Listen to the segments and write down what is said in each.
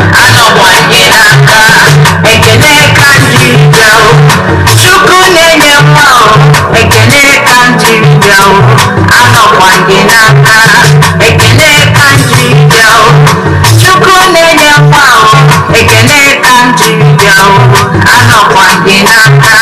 anọwanye n'aka ekene ka ndị bịa chukwu na-enye mma ekene ka ndị bịa anọwanye n'aka ekene ka ndị bịa chukwu na-enye mma ekene ka ndị bịa anọwanye n'aka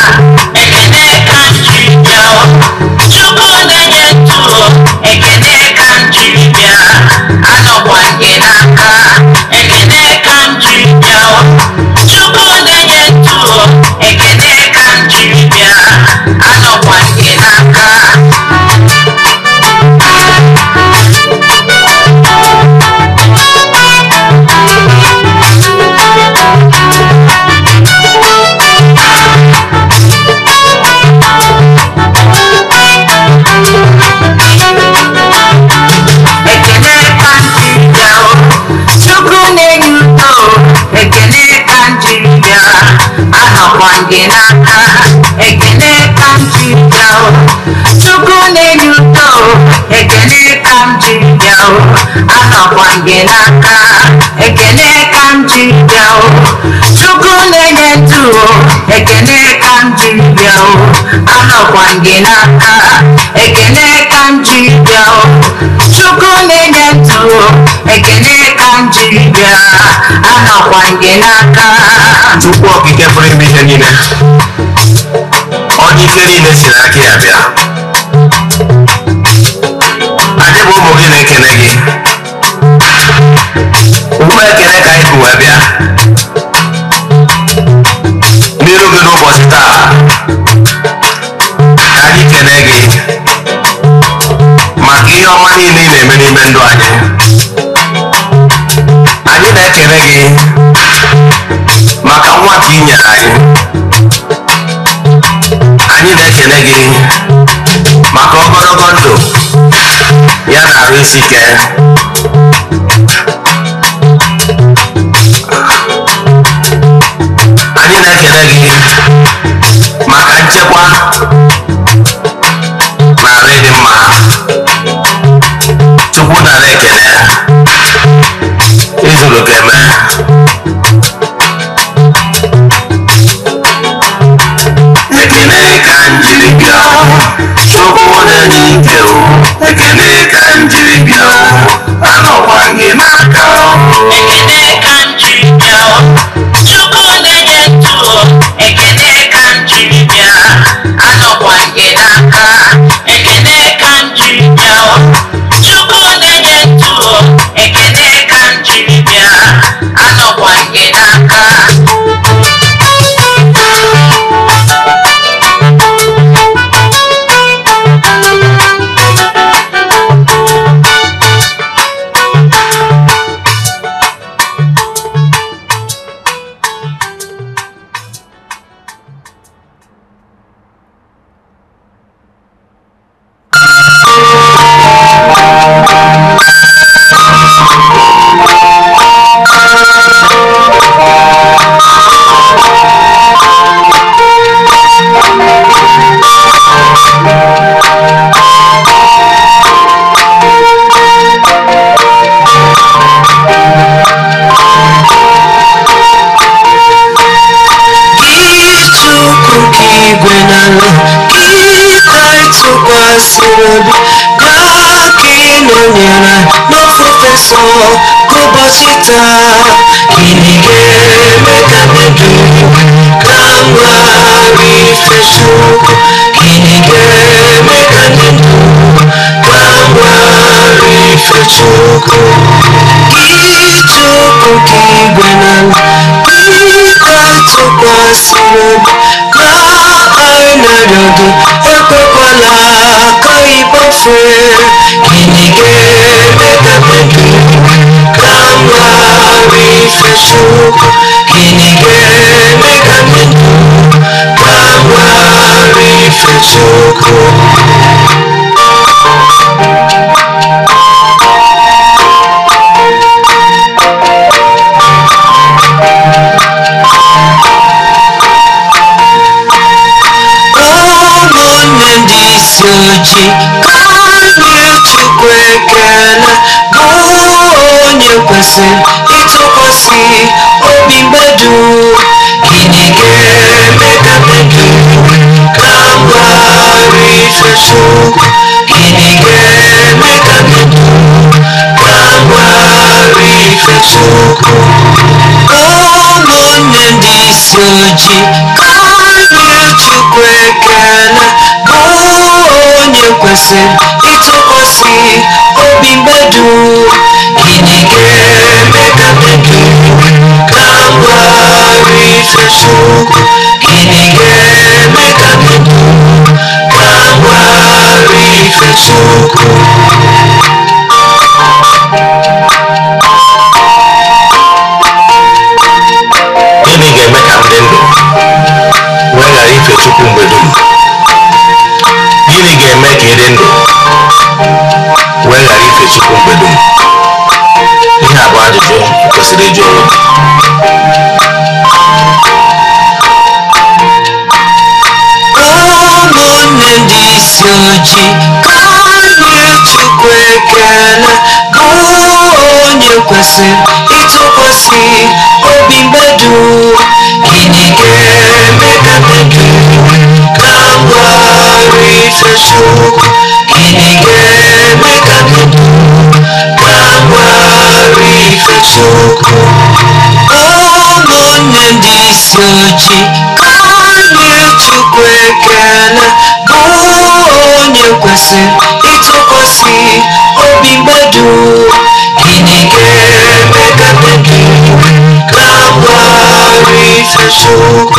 kwangị n'aka ekele ka m ji bịa o chukwu na-enye udo ekele ka m ji bịa o anọkwangị n'aka ekele ka m ji bịa o chukwu na-enye ndụ o ekele ka m ji bịa o anọkwangị n'aka ekele ka m chukwu na-enye ndụ ekele ka m jiri bịa anọkwa gị n'aka chukwu okike pụrụ ime ihe niile onye ike niile si n'aka ya bịa anyị bụ ụmụ gị na-ekele gị ugbu ekele ka anyị bụ wee bịa ihe ọma niile ị na-eme n'ime ndụ anyị anyị na-ekele gị maka nwa ka ị nyere anyị anyị na-ekele gị maka ogologo ndụ ya na arụ isi ike anyị na-ekele gị maka nchekwa sokoone n'ike o ekele ka njiri bịa anọkwa gị n'aka ekele ka obi aka ịnọnyere n'ofufe nsọ ka ụbọchị taa gịnị ga-eme tu, mmebi ka mma ife chukwu gịnị ga tu, ka ndụ ka mma ife chukwu ịchụpụ ka igwe na ịta tụkwasị obi ka namorando Eu tô polaca e você Que ninguém me me Uchi kọlu Chukwu ekele bụ onye kwesịrị ịtụkwasị obi mmadụ gịnị ga-eme ka mmadụ ka mgbarị Chukwu gịnị ga-eme ka mmadụ ka mgbarị Chukwu ụmụnne ndị isi ojii kọlu Chukwu kwesị ịtụkwasị obi mmadụ gịnị ga-eme ka mmadụ gagharị ifefu gịnị ga-eme ka mmadụ gagharị ifefu chukwu mgbedo m ihe a bụ ajụjụ kwesịrị ịjụ onwe ụmụnne ndị isi ojii ka anyị chukwu ekele bụ onye kwesịrị ịtụkwasị obi mgbedo gịnị ga-eme ka mmebi Sugar, he gave me that soko omonye ndị isi ojii kanye chukwu ekele bụ onye kwesị ịtụkwasị obi mmadụ gịnị ga-eme ka mmadụ na-agbara ife chukwu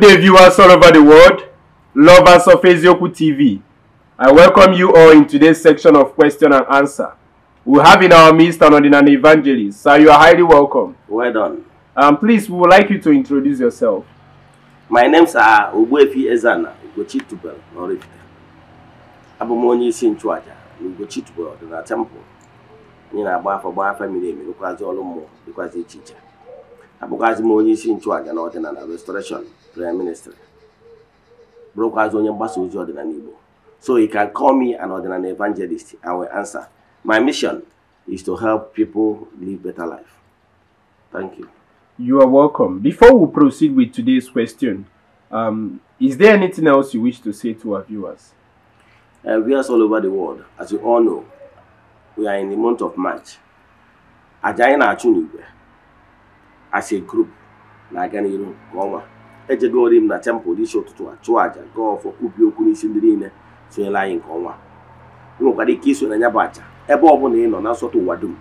Good day, viewers all over the world, lovers of Ezioku TV. I welcome you all in today's section of question and answer. We have in our midst an ordinary evangelist, so you are highly welcome. Well done. Um, please, we would like you to introduce yourself. My name's uh, Ubuefi Ezana Ugochitubel Norifite. Abụ m onye in nchụaja na Ugochitubel ọdịna temple. Anyị na-agba afọ gbaa afọ mmiri emi dịkwazị ọrụ mmụọ dịkwazị iche iche. Abụkwazị m onye isi nchụaja na ọdịnala restoration prime minister bụrụkwazi onye mgbasa ozi so he can call me an ordinary evangelist I will answer my mission is to help people live better life thank you you are welcome before we proceed with today's question um, is there anything else you wish to say to our viewers uh, viewers all over the world as you all know we are in the month of March as a group like any n'iru nke ejegori m na tempụl dị isi ụtụtụ a chụọ aja gaa ọfọ kwubie okwu n'isi ndị niile sonyere anyị nke ọnwa nwekwara ike iso na ya bụ àjà ebe ọ bụla ị nọ na nsọtụ ụwa dum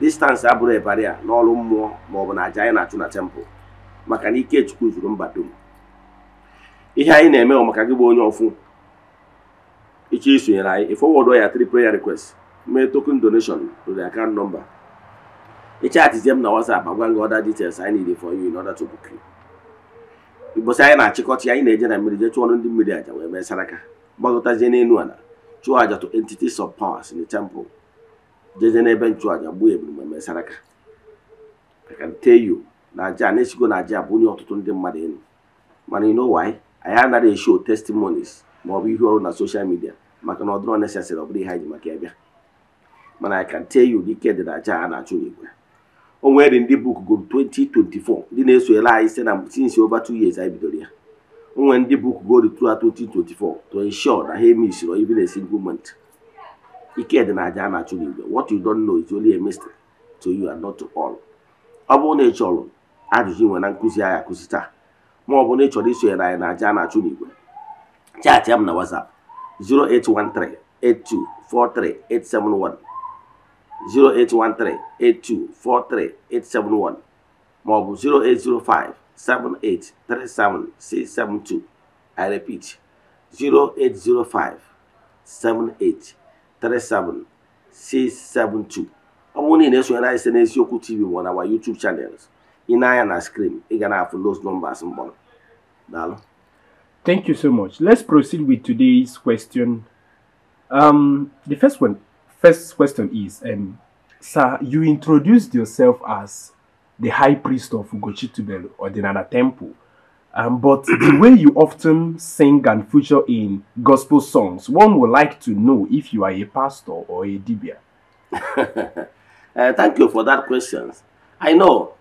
distansị abụrụ ịbarị a n'ọrụ mmụọ ma ọ bụ na aja anyị na-achụ na tempụl maka na ike chukwu zuru mba dum ihe anyị na-eme ọ maka gị bụ onye ọfụ ịchọ isonyere anyị ị fọwọdụ ya tri prayer request mee token donation to the nọmba number ị m na WhatsApp agwa ngị ọda details anyị n' for you in order to mgbọsị anyị na-achịkọta ya anyị na-eje na mmiri jee chụọrọ ndị mmiri aja wee mee saraka gbagọtazie n'elu ala chụọ aja to Entity of powers in the temple jeje n'ebe nchụaja gbuo ebiri wee mee saraka aka yo na aja na-esigo na aja bụ onye ọtụtụ ndị mmadụ elu mana you know anyị anaghị esho testimonies ma ọ bụ ọrụ na social midia maka na ọ dịrọ nesesịrị ọ bụrụ ihe anyị ji maka ya bịa mana akantyo can dị na aja a na-achụ n'igwe onwere ndị buk gụrụ 2024 ndị na-esoyere anyị si na since over two years anyị bidoro ya onwere ndị buk gụrụ throughout 2024 to ensure na ha emisiro even a single month ike dị na aja a na-achụ n'igwe what you don know is only a mystery to you and not to all ọ bụrụ na ị chọrọ ajụjụ nwe na nkụzi anyị akụzi taa ma ọ bụ na ị chọrọ isonyere anyị na aja na-achụ n'igwe chaatị m na WhatsApp 0813824381 0813 8243 871 maọbụ 0805 7837 672 I repeat 0805 7837 672 ọ bụrụ na ị na-esonyere anyị site n'eziokwu tv you na youtube channels ị I na screen ị ga na-afụ those numbers mbọ Thank you so much. Let's proceed with today's question. Um, the first one first question is, um, sir, you introduced yourself as the high priest of Ugochitubelu or the Nana Temple. Um, but the way you often sing and feature in gospel songs, one would like to know if you are a pastor or a dibia. uh, thank you for that question. I know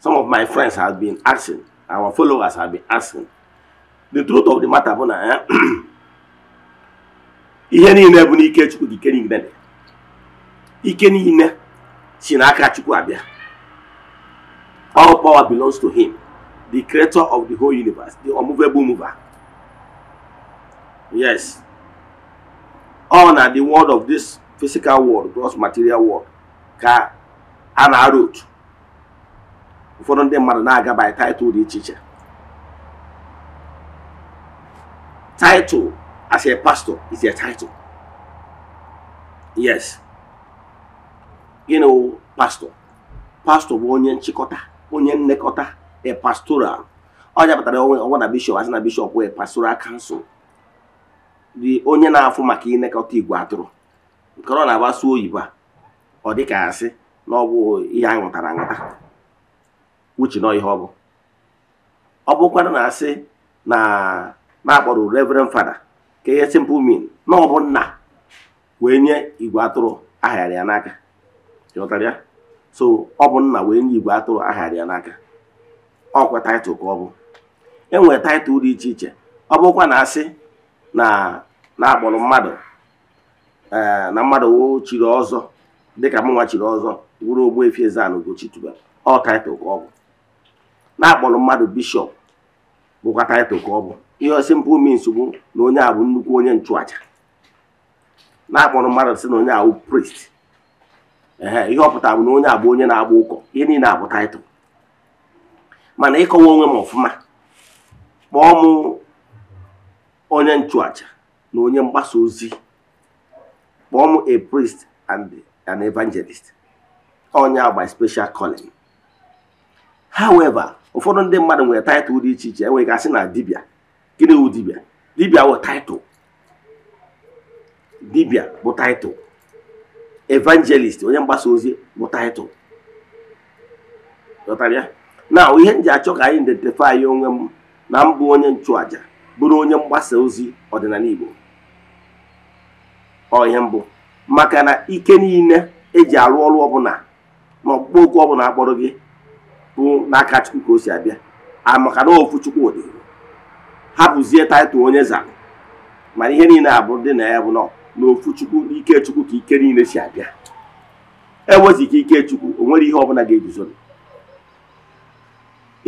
some of my friends have been asking, our followers have been asking. The truth of the matter, bona, eh? ike niile si n'aka chukwu abịa all power belongs to him the creator of the whole universe the unmovable mover yes all na the world of this physical world gross material world ka a na-arụ otu ụfọdụ ndị mmadụ na-aga by title dị iche iche title as a pastor is a title yes you know pastor pastor bụ onye nchịkọta onye nlekọta e pastoral ọnya pụtara ọnwa na bishọp asị na bishọp wee pastoral kansụl dị onye na-afụ maka ịnekọta igwe atụrụ nke ọ na-agbaso oyibo a ọ dị ka asị na ọ bụ ihe anyị uche na ihe ọ bụ ọ bụkwara na asị na na-akpọrọ reverend fada ka ihe simple mean na ọ bụ nna wee nye igwe atụrụ aghara ya n'aka chọtara so ọ bụ nna wee nye igwe atụrụ aghara ya n'aka ọkwa taịtụl ka ọ bụ enwere taịtụl dị iche iche ọ bụkwa na asị na na-akpọrọ mmadụ eh, na mmadụ chiri ọzọ dịka mụnwa chiri ọzọ wuru Ogbuefi Eze-Ana Ugochi ọ taịtụl ka ọ bụ na-akpọrọ mmadụ bishọp bụkwa taịtụl ka ọ bụ ihe simple means nsogbu na onye a bụ nnukwu onye nchụaja na-akpọrọ mmadụ sị na onye ahụ prist ee ihe ọpụta bụ na onye abụ onye na-agba ụkọ ihe niile abụ taịtụl mana ịkọwa onwe m ọfụma kpọọ m onye nchụacha na onye mgbasa ozi kpọọ m a priest and an evangelist onye agba special calling however ụfọdụ ndị mmadụ nwere taịtụl dị iche iche enweghị na dibịa gịnị wụ dibịa dibịa wụ taịtụl dibịa bụ taịtụl evangelist onye mgbasa ozi bụ taịtụl na ihe m ji achọ ka anyị identify onwe m na mbụ onye nchụaja bụrụ onye mgbasa ozi ọdịnala Igbo ọ ihe mbụ maka na ike niile eji arụ ọrụ ọbụla na ọkpụkpọ okwu ọbụla akpọrọ gị bụ n'aka Chukwu ka o si abịa amaka na ofu Chukwu dị hapụzie taịtụl onye zara mana ihe niile abụrụ dị na ya bụ nọ na ofu chukwu ike chukwu ka ike niile si abịa eweziga ike chukwu o nwere ihe ọbụla ga-eguzo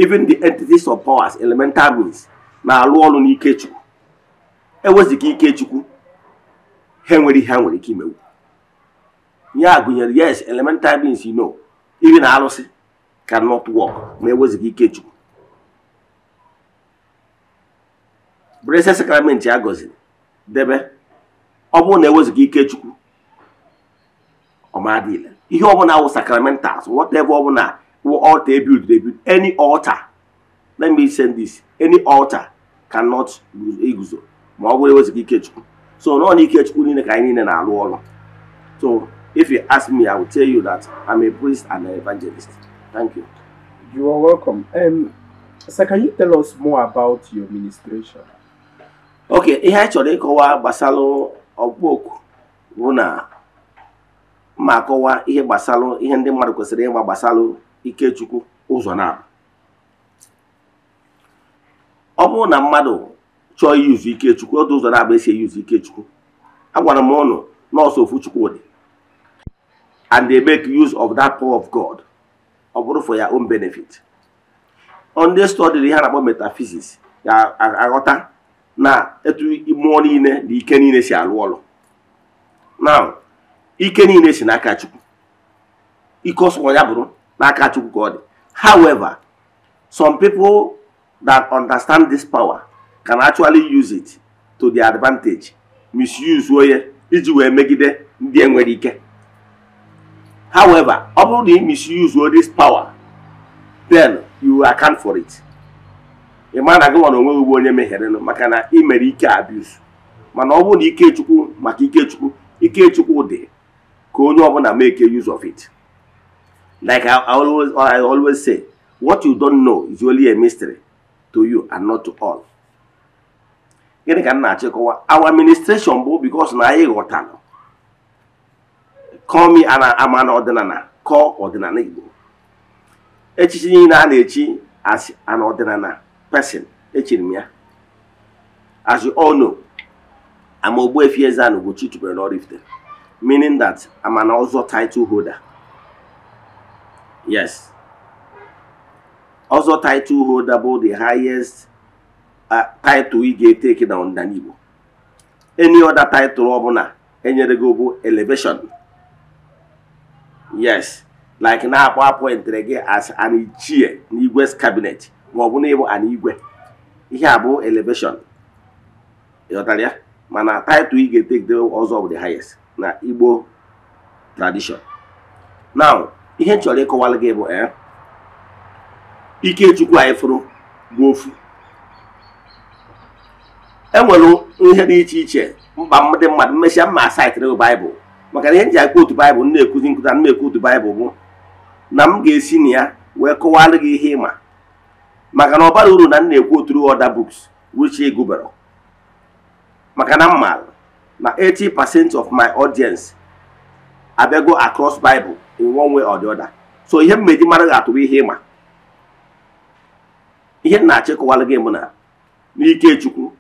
even the entities of powers elemental means na-alụ ọrụ n'ike chukwu eweziga ike chukwu ha nwere ihe ha nwere ike imewu ya gụnyere yes elemental means you know na arụsị cannot work ma eweziga ike chukwu brese a gọziri debe ọ bụrụ na ewezuga ike chukwu ọmadile ihe ọbụla wụ sacramentals whatever ọbụla wụ ọta ebuild ebuild any ọta let me send this any altar cannot iguzo ma ọ bụrụ ewezuga ike chukwu so nọ na ike chukwu niile ka anyị niile na-alụ ọrụ so if you ask me i will tell you that i'm a priest and an evangelist thank you you are welcome um, sir can you tell us more about your ministration okay ihe anyị chọrọ ịkọwa gbasara ọkpụ oku bụ na ma akọwa ihe gbasalụ ihe ndị mmadụ kwesịrị ịgba gbasalụ Ikechukwu ụzọ na ọ bụrụ na mmadụ chọọ iyuzu Ikechukwu otu ụzọ na-abụ esi eyuzu Ikechukwu agwara m ụnụ nọọsụ ofu Chukwudị and they make use of that power of God ọ bụrụ for their own benefit ndị study ihe a na-akpọ metaphysics ga-aghọta na etu mmụọ niile na ike niile si alụ ọlụ na ike niile si n'aka chukwu ike ya bụrụ n'aka chukwu ka ọ dị however some people that understand this power can actually use it to their advantage misuse onye iji wee megide ndị enwere ike however ọ bụrụ na ị misuse this power then you account for it ị ma na gị nwa na onweghị ugbo onye meherenụ maka na ị mere ike abuse mana ọ bụrụ na ikechukwu maka ikechukwu ikechukwu dị ka onye ọbụla make use of it like I always, say what you don't know is only a mystery to you and not to all gịnị ka m na-achịkọwa our administration bụ because na anyị ghọtara kọmi ama na ọdịnala ọdịnala Igbo echichi niile a na-echi asị ana ọdịnala person echiri m ya as you all know ama Ogbuefi Eze-Ana Ugochi tubelu n'Oraifite meaning that I'm an ozo title holder yes ozo title holder bụ the highest uh, title ị ga-etake na ọdịnala Igbo any other title ọbụla enyere gị bụ elevation yes like na-akpọ appointment gị as an ichie n'Igwe's cabinet ma ọ bụ n'ịbụ ịbụ ana igwe ihe a bụ elevation ịghọtara ya mana title ị ga-etegide ọzọ bụ the highest na Igbo tradition now ihe chọrọ ịkọwalụ gị bụ ee eh, Ikechukwu anyị fụrụ bụ ofu enwere ihe dị iche iche mkpa dị mmadụ mmesịa mma saịtịrị baịbụl maka na ihe nji ji akpa otu baịbụl na-ekuzi nkụta na-ekwu otu baịbụl bụ na m ga-esi na ya wee kọwalụ gị ihe ịma maka na ọ bara uru na m na-ekwu oturu other buks which ị maka na m na 80% of my audience abịago across Bible in one way or the other so ihe m meji mara ga atụ ihe ịma ihe m na-achịkọwara gị mụ na n'ike Chukwu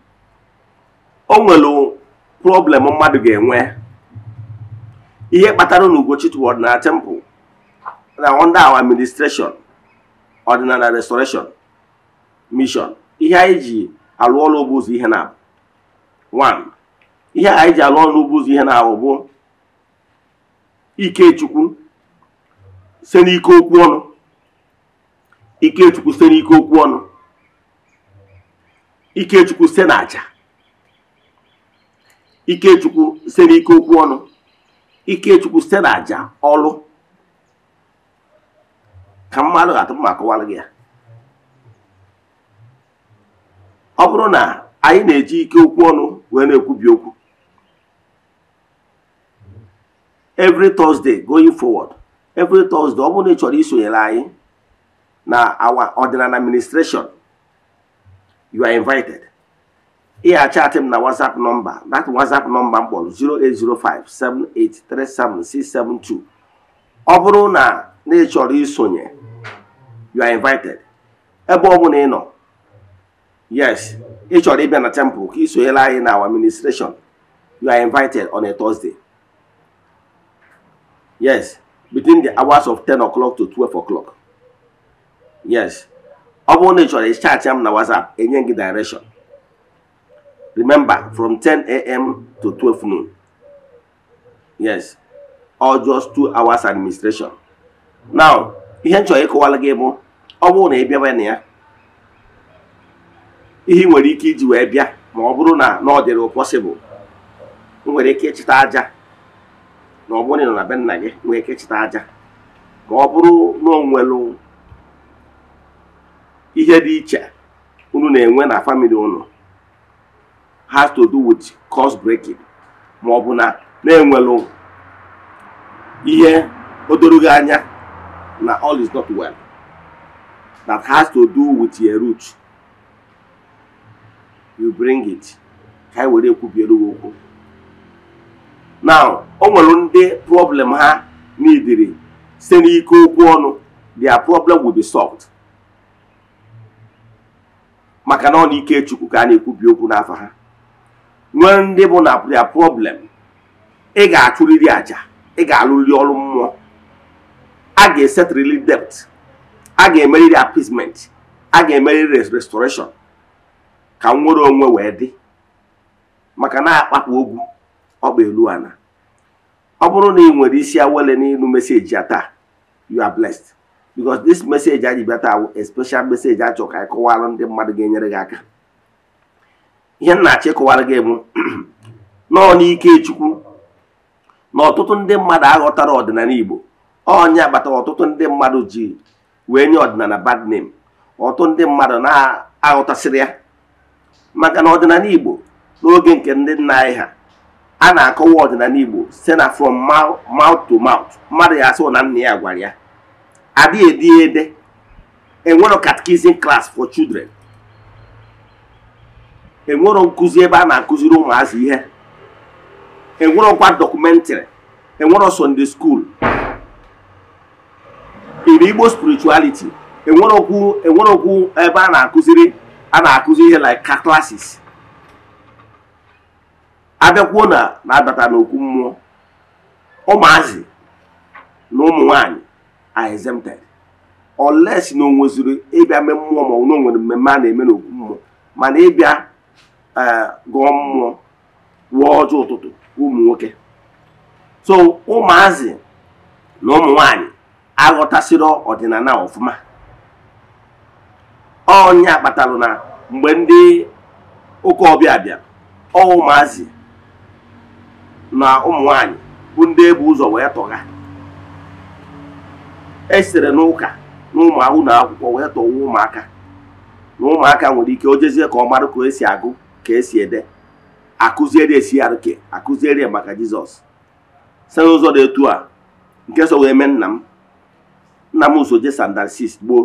o nwere problem mmadụ ga-enwe ihe kpatara na Ugochi toward na temple na under our administration ọdịnala restoration mishọn ihe anyị ji alụ ọrụ ugbo ụzọ ihe na one ihe anyị ji alụ ọrụ ugbo ụzọ ihe na-ahụ bụ Ikechukwu se n'ike okwu ọnụ Ikechukwu se n'ike okwu ọnụ Ikechukwu se n'aja Ikechukwu se n'ike okwu ọnụ Ikechukwu se n'aja ọlụ ka mmadụ ga-atụpụ ma akọwara gị ya ọ bụrụ na anyị na-eji ike okwu ọnụ wee na-ekwubi okwu every Thursday going forward every Thursday ọ bụrụ na ị chọrọ isonyere anyị na our ordinary administration you are invited ị achatị m na WhatsApp nọmba that WhatsApp nọmba m kpọrọ 08057837672 ọ bụrụ na na ị chọrọ isonye you are invited ebe ọ bụla ị nọ Yes, ị chọrọ ịbịa na temple ka isonyere anyị na our administration. You are invited on a Thursday. Yes, between the hours of 10 o'clock to 12 o'clock. Yes. Ọ bụrụ na ị chọrọ ịchaatị m na WhatsApp, enye gị direction. Remember, from 10 a.m. to 12 noon. Yes. Or just two hours administration. Now, ihe m chọrọ ịkọwara gị bụ ọ bụrụ na ị ihe ị nwere ike iji wee bịa ma ọ bụrụ na na ọ dịrị pọsịbụl nwere ike ịchịta aja na ọ bụrụ na ọ na be nna gị nwere ike ịchịta aja ma ọ bụrụ na o nwere ihe dị iche unu na-enwe na famịlị unu has to do with cost breaking ma ọ bụ na na-enwelụ ihe gị anya na all is not well that has to do with your root you bring it ka e were ekwubiere gị okwu now o nwere ndị problem ha n'idiri site n'ike okwu ọnụ their problem will be solved maka na ọ na ike chukwu ka a na-ekwubi okwu n'afọ ha nwee ndị bụ na their problem ị ga-achụrịrị aja ị ga alụrị ọrụ mmụọ a ga-esetrili debt a ga emeriri appeasement a ga emeriri restoration ka nwere onwe wee dị maka na-akpapụ ogwu ọkpa elu ana ọ bụrụ na ị nwere isi awele n'ịnụ meseji a taa you are blessed because this message anyị bịa taa special message achọ ka anyị ndị mmadụ ga-enyere gị aka ihe m achị achọ gị bụ nọọ n'ike chukwu na ọtụtụ ndị mmadụ aghọtara ọdịnala igbo onye agbata ọtụtụ ndị mmadụ ji wee nye ọdịnala bad name ọtụtụ ndị mmadụ na-aghọtasịrị ya maka na ọdịnala Igbo n'oge nke ndị nna anyị ha a na-akọwa ọdịnala Igbo site na from mouth to mouth mmadụ ya asụ na nna ya gwara ya adịghị edi ede enwero e catechism klas for children enwero nkụzi ebe a na-akụziri ụmụazị ihe enwerokwa dọkụmentrị enwero Sunday school Igbo spirichualiti enwerokwu e ebe a na-akụziri a na-akụzi ihe like ka classes abịakwuo na na-abata n'okwu mmụọ ụmụazị na ụmụ nwanyị are exempted si na onweziri nweziri ịbịa mee mmụọ ma ọ na nwere mmemme a na-eme n'okwu mmụọ mana ịbịa e, gụọ mmụọ ruo ọjọọ ụtụtụ ụmụ nwoke so ụmụazị na ụmụ nwanyị aghọtasịrị ọdịnala ọfụma ọnya kpatalụ na mgbe ndị ụka ọbịa bịa ọ ụmụazị na ụmụ nwanyị bụ ndị ebu ụzọ wee tọga esere n'ụka na ụmụ na akwụkwọ wee tọwa ụmụaka na ụmụaka nwere ike o jezie ka ọ mara ka esi agụ ka esi ede akụziere esi arụke akụziere maka jizọs site n'ụzọ dị etu a nke so wee mee nna m nna m uso je gboo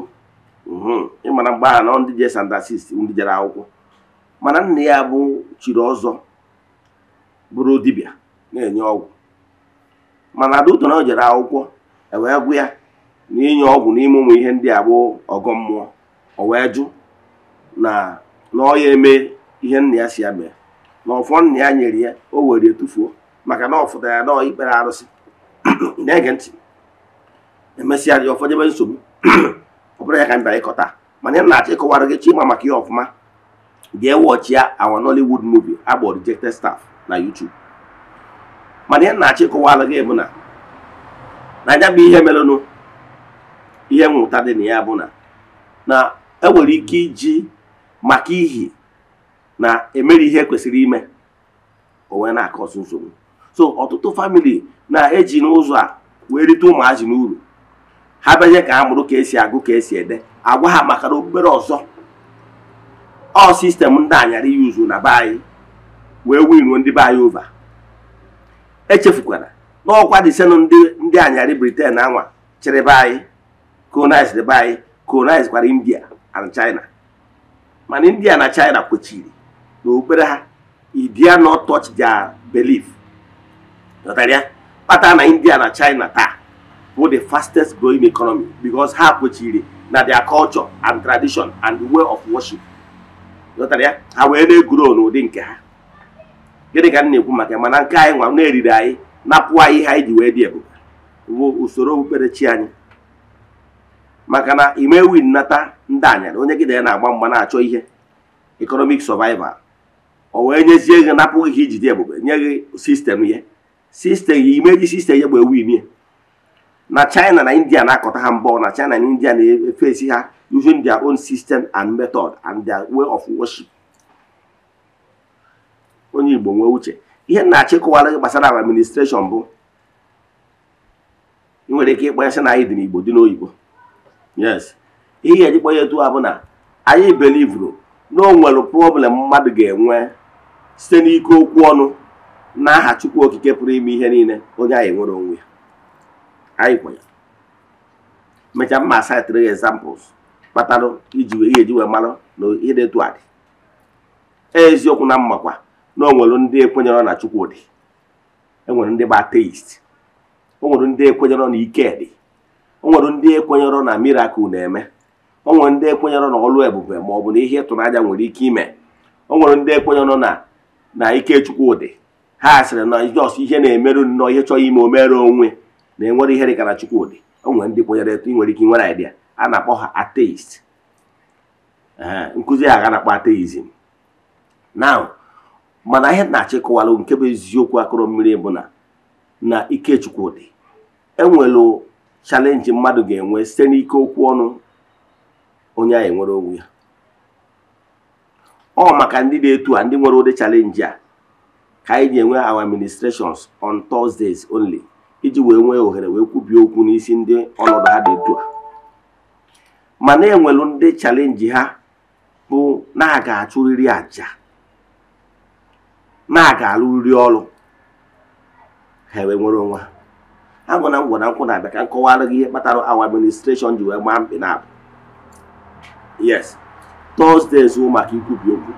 Mhm. ịmara mgbagha na ndị je sandasis ndị jere akwụkwọ mana nna ya bụ chiri ọzọ bụrụ dibịa na-enye ọgwụ mana adauto na o jere akwụkwọ ewee gwụ ya na inye ọgwụ n'ime ụmụ ihe ndị a bụ ọgọ mmụọ o wee jụ na na ọ ya eme ihe nna ya si ya mee na ọfọ nna ya nyere ya o were etufuo maka na ọ ya na ikpere arụsị na-ege ntị emesịa dị ụfọdụ ebe nsogbu ọbụrụ ya ka m bịara ịkọta mana ya na-achọ ịkọwara gị chima maka ya ọfụma jee wọchịa awa Nollywood movie agbọ rejected staff na YouTube mana ya na-achọ ịkọwara gị bụ na na bụ ihe merenụ ihe mmụta dị na ya bụ na na enwere ike iji maka ihi na emeri ihe kwesịrị ime onwe na-akọsụ nsogbu so ọtụtụ famili na-eji n'ụzọ a wee rite ụmụazị n'uru ha bezie ka ha mụrụ ka esi agụ ka esi ede agwa ha maka na obere ọzọ ọ sistemụ ndị anyara yuzu na be anyị wee winuo ndị be anyị ova echefukwara na ọkwa disenụ ndị ndị anyarị briten anwa chịrị be anyị colonize be anyị colonize kwara india and china mana india na china kwechiri na obere ha idia not touch their belief kpatara na india na china taa bụ the fastest growing economy because ha kwechiri na their culture and tradition and the way of worship ya ha wee na-eguro n'ụdị nke ha gịnị ka m na-ekwu maka mana nke anyị nwa na-eriri anyị napụ anyị ihe anyị ji wee dị ebube bụ usoro okpukperechi anyị maka na imewi nnata ndị anya onye gị na ya na-agba mgba na-achọ ihe economic survival o wee nyezie gị napụ gị dị ebube nye gị sistem ya sistem imeji sistem ya gba ya. na china na india na-akọta ha mbọ na china na india na-efesi ha using their own system and method and their way of worship onye igbo nwee uche ihe na-achịkọwara gbasara administration bụ nwere ike ịkpọ ya sị na anyị dị n'igbo dị n'oyibo yes ihe eji kpọ ya etu ha bụ na anyị belivuru na o nwere problem mmadụ ga-enwe site n'ike okwu ọnụ aha chukwu okike pụrụ ime ihe niile onye anyị nwere onwe ya anyịkwa ya mechaa mma saịtịrị ya examples kpatalụ iji wee ihe eji wee malụ na ịdị etu a e, eziokwu na mmakwa na onwere ndị ekwenyere na chukwu dị enwere ndị bụ ateist onwere ndị ekwenyere na ike dị onwere ndị ekwenyere na mirakụl na-eme onwere ndị ekwenyere na ọlụ ebube ma ọ bụ na ihe ịtụnanya nwere ike ime onwere ndị ekwenyere na na ike chukwu dị ha sịrị na jọs ihe na-emerụ nnọọ ihe chọọ ime omere onwe na enwere ihe dị ka Chukwudi o nwere ndị kwenyere etu ị nwere ike nwere idea a na-akpọ ha ateist nkụzi a ga na-akpọ ateizm now mana ihe na-achịkọwalụ nke bụ eziokwu akụrụ mmiri bụ na na ike Chukwudi enwelụ chalenji mmadụ ga-enwe site n'ike okwu ọnụ onye anyị enwere onwe ya ọ maka ndị na etu a ndị nwere ụdị chalenji a ka anyị ji enwe our ministrations on Thursdays only iji wee nwee ohere wee kwubie okwu n'isi ndị ọnọdụ ha dị etu a mana enwelu ndị chalenji ha bụ na aga ga-achụrịrị aja na aga ga-alụrịrị ọrụ ha wee nwere onwe ha agụ na ngwa na nkwụ na-abịa ka nkọwara gị ihe kpatara awa administration ji wee gbaa mkpị na abụ yes tọzdee zuo maka ikwubi okwu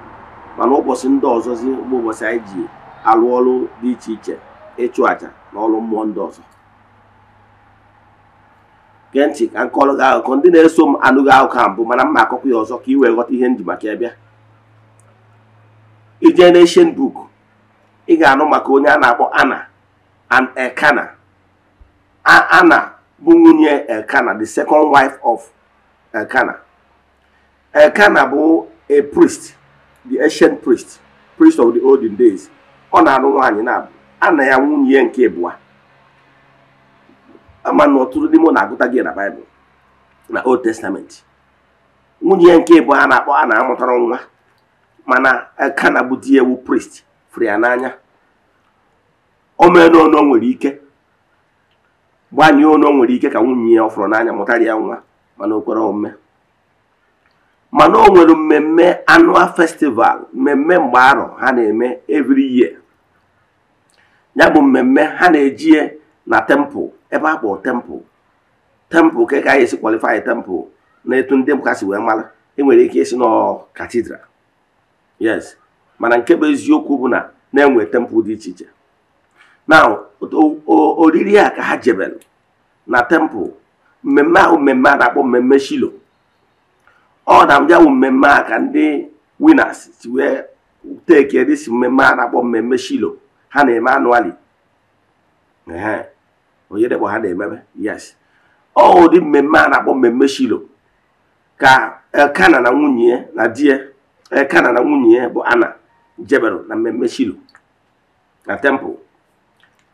mana ụbọchị ndị ọzọzi mgbe ụbọchị anyị ji alụ ọrụ dị iche iche ịchụ àjà n'ọlụ mmụọ ndị ọzọ gee ntị ka m gị akụkọ ndị na-eso m anụghị akụkọ mbụ mana mma akụkọ ya ọzọ ka ị wee ghọta ihe ndị maka ịbịa ije n'eshen book ị ga-anụ maka onye a na-akpọ ana and Ekana. ana bụ nwunye Elkana the second wife of Elkana Elkana bụ a priest the ancient priest priest of the olden days ọ na anụ nwaanyị na-abụ a ya nwunye nke ịbụa ama na ọtụtụ dị mụ na-agụta gị na baịbụl na old testamenti nwunye ya nke ịbụa a na-akpọ a na-amụtara nwa mana kana bụ di ewu prist fụrụ ya n'anya o mee ono nwere ike gbanye ono nwere ike ka nwunye ya ọ n'anya mụtara ya nwa mana o kwere omume mana o nwere mmemme anụa festival mmemme mgbe arọ ha na-eme evri year ya bụ mmemme ha na-eji na tempụ ebe a kpọrọ tempụ tempụl ka ka anyị esi kwalifai tempụl na etu ndị si wee mara enwere ike isi nọ katidral yes mana nke bụ eziokwu bụ na na-enwe tempụ dị iche iche na oriri a ka ha jebelụ na tempụ mmemme ahụ mmemme a na-akpọ mmemme shilo ọ na bụ mmemme a ka ndị winas si wee teke si mmemme a na-akpọ mmemme shilo ha na-eme anụ anụali onye dekpọ ha na-emebe yes ọ ụdị mmemme a na-akpọ mmemme shilo ka elkana na nwunye ya na di ya elkana na nwunye ya bụ ana jebero na mmemme shilo na tempụl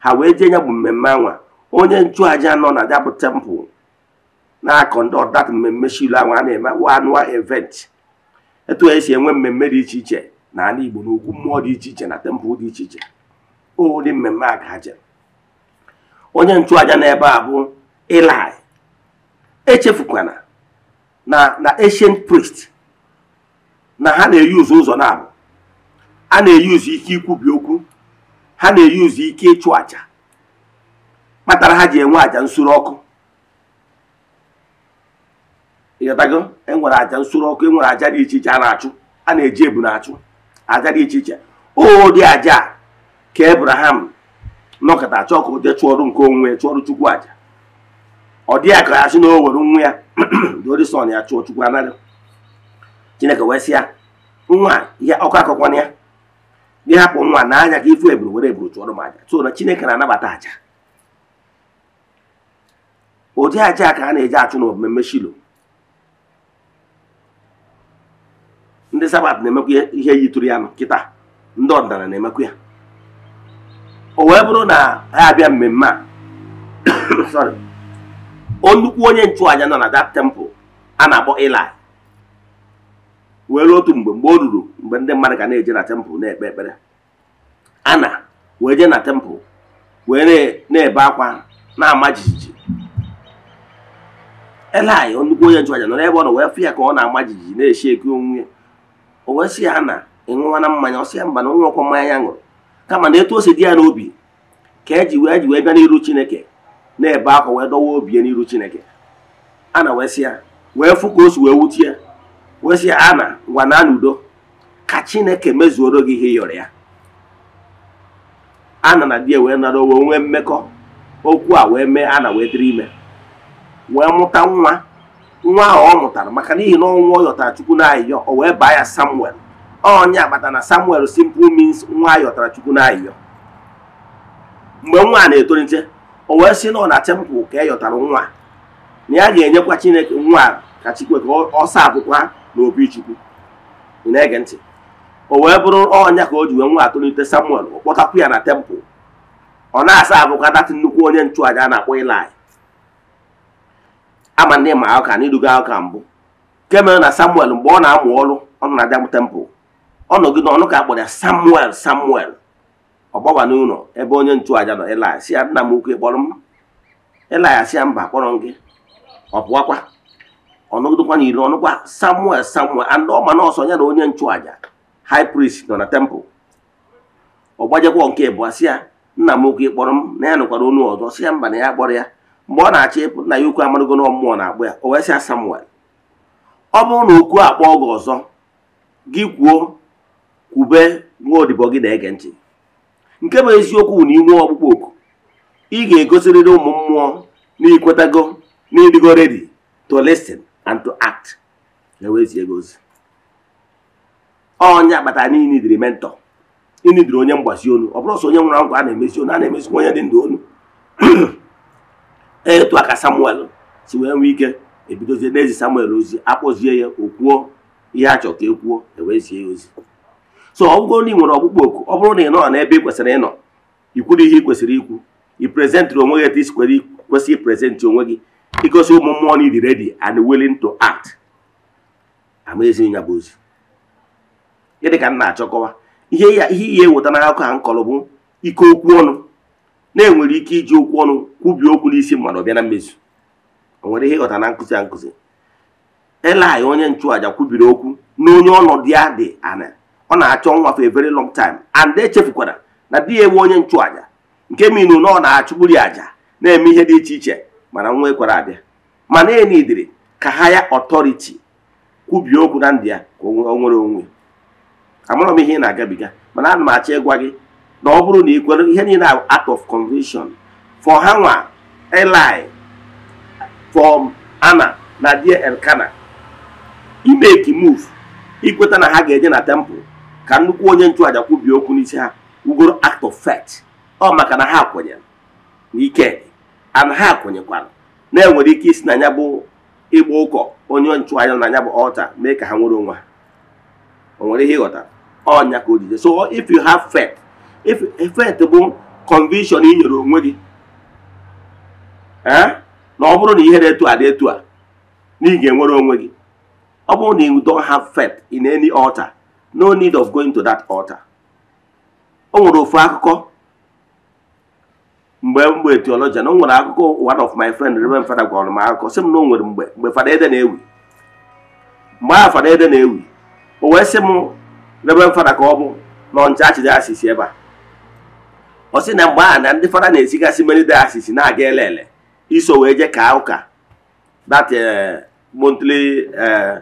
ha wee jee ya bụ mmemme anwa onye nchụaja nọ na ya bụ tempụl na-akọ ndị ọdat mmemme shilo anwa a na-eme anụa event etu esi enwe mmemme dị iche iche na ala Igbo na mmụọ dị iche iche na tempụl dị iche iche tupu ụdị mmemme a onye nchụaja n'ebe a bụ Ilaị echefukwana na na ancient priest na ha na-eyuzu ụzọ na-abụ a na-eyuzu ike ikwubi okwu ha na-eyuzu ike ịchụ aja kpatara ha ji enwe aja nsuru ọkụ ịghọtago enwere aja nsuru ọkụ enwere àja dị iche iche a na-achụ a na-eji ebu na-achụ aja dị iche iche ụdị aja ka ebraham nọkọta chọọ ka o jee chụọrụ nke onwe chụọrụ chukwu aja ọ dị aka ya sị na o were nwa ya dorisọn ya chụọ chukwu anaghị chineke wee sị ya nwa ya ọkụ akọkwana ya gị hapụ nwa na anya ka ifu eburu were eburu chụọrọ m aja so na chineke na-anabata aja ụdị aja ka a na-eji achụ na mmemme shilo ndị sabat na-emekwa ihe yitụrụ ya nkịta ndị ọdịnala na-emekwa ya o wee bụrụ na ha abịa mmemme a nnukwu onye nchụaja nọ na that temple a na-akpọ Eli wee otu mgbe mgbe o ruru mgbe ndị mmadụ ga na-eje na temple na-ekpe ekpere ana wee jee na temple wee na-ebe akwa na-ama jijiji Eli nnukwu onye nchụaja nọ n'ebe ọ nọ wee fụ ya ka ọ na-ama jijiji na-eshi eke onwunye ya o wee sị ya na ịṅụwana mmanya ọ sị ya mba na onye ọkwọ mmanya ya ṅụrụ kama na etu o si dị ya n'obi ka eji wee e ji wee bịa n'iru chineke na-ebe akwa wee dọwa obi n'iru chineke a na wee ya wee fụ ka o si wee wuti ya wee sị ya a na na n'udo ka chineke mezuoro gị ihe yọrọ ya ana na di ya wee nara owe nwee mmekọ okwu a wee mee ana wee dịrị ime wee mụta nwa nwa ahụ ọ mụtara maka n'ihi na ọnwụ ọ yọtara chukwu na ayịyọ o wee baa ya samuel onye agbata na samuel simple means nwa ayọtara chukwu na mgbe nwa na-etolite o wee si na ọ na tempụl ka e yọtara nwa na ya ga-enyekwa chineke nwa ka chikwe ka ọ saa akwụkwa na obi chukwu ị na-ege ntị o wee bụrụ ọnya ka o ji wee nwa atolite samuel ọ kpọtakwu ya na tempụl ọ na-asa abụkwa datị nnukwu onye nchụaja na-akpọ ilaị ama ndị ma aka na iduga aka mbụ nke na samuel mgbe ọ na-amụ ọrụ ọ nọ na tempụl ọnọgide ọnụ ka akpọrọ ya samuel samuel ọ gbawa n'ụlọ ebe onye nchụaja nọ ịlaya si ya nna m ukwu ịkpọrọ m ịlaya si ya mba kpọrọ gị ọ pụwakwa ọnụgidekwa na iri ọnụkwa samuel samuel and ọma na ya na onye nchụaja high priest nọ na tempụl ọ gbajekwa nke bụ si ya nna m ukwu kpọrọ m na ya nụkwara onu ọzọ si ya mba na ya kpọrọ ya mgbe ọ na-achị ịpụ nna ya ukwu amarugo na mmụọ na-akpọ ya o wee sị ya samuel ọ bụrụ na okwu akpọ gị ọzọ gị kwuo kwube nwaodibo gị na-ege ntị nke bụ eziokwu na inwe ọkpụkpọ oku ị ga-egosirịrị ụmụ mmụọ na ikwetago na ịdịgo ready to listen and to act ewezie gị ozi onye akpatara na inidiri mentọ inidiri onye mgbazi onu ọ bụrụ sọ onye nwụrụ anwụ a na-emezi onu a na-emezikwa onye dị ndụ onu e etu aka samuel si wee nwee ike ebidozie n'ezi samuel ozi akpọzie ya o kwuo ihe a chọrọ ka e kwuo ewezie ya ozi so ọgwụgwọ na ị nwere ọkpụkpọ oku ọ bụrụ na ị nọ n'ebe ị kwesịrị ịnọ ikwuru ihe ị kwesịrị ikwu ị prezentịrị onwe gị etu isi kwesịrị iprezentị onwe gị igosi ụmụ mmụọ na ịdị ready and willing to act amaezi ya bụ ozi ịdị ka m na-achọkọwa ihe ya ihe ihe eweta n'akụkọ a m bụ ike okwu ọnụ na-enwere ike iji okwu ọnụ kwubie okwu n'isi mmadụ ọbịa na mmezu o nwere ihe ịghọta na nkụzi a nkụzi Elaị onye nchụaja kwubiri okwu na onye ọnọdụ ya dị ana ọ na-achọ nwa for a very long time and echefukwara na di ya ewe onye nchụaja nke minu na ọ na-achụgburi aja na-eme ihe dị iche iche mana nwa ekwara abịa mana enidiri ka ha ya ọtọriti kwubie okwu na ndị ya ka o nwere onwe amarọ m ihe ị na-agabiga mana ana m achọ ịgwa gị na ọ bụrụ na ị kwere ihe niile act of convention for ha nwa eli for ana na die elkana imeki move ikweta na ha ga-eje na temple ka nnukwu onye nchụàja kwubie okwu n'isi ha ugoro act of fact ọ maka na ha kwenyere n'ike ana ha kwenyekwara na-enwere ike isi na ya bụ ịgba ụkọ onye nchụàja na ya bụ ọlta mee ka ha nwere onwe ha o nwere ihe ịghọtara ọnya ka o so if you have faith if faith bụ conviction ị nyere onwe gị eh, na ọ bụrụ na ihe na-etu adị etu a na ị ga-enwere onwe gị ọ bụrụ na you don't have faith in any altar no need of going to that altar o nwere ofu akụkọ mgbe mgbe theologian o nwere akụkọ one of my friend Reverend Fada gwara m akụkọ sị m na o nwere mgbe mgbe Fada Ede na-ewi mgbe ahụ Fada Ede na-ewi o wee sị m Reverend Fada ka ọ bụ nọ ncha achịde asịsị ebe a ọ sị na mgbe a na ndị Fada na-esigasị mmeri de asịsị na-aga ele iso wee je kaa ụka that eh, monthly eh,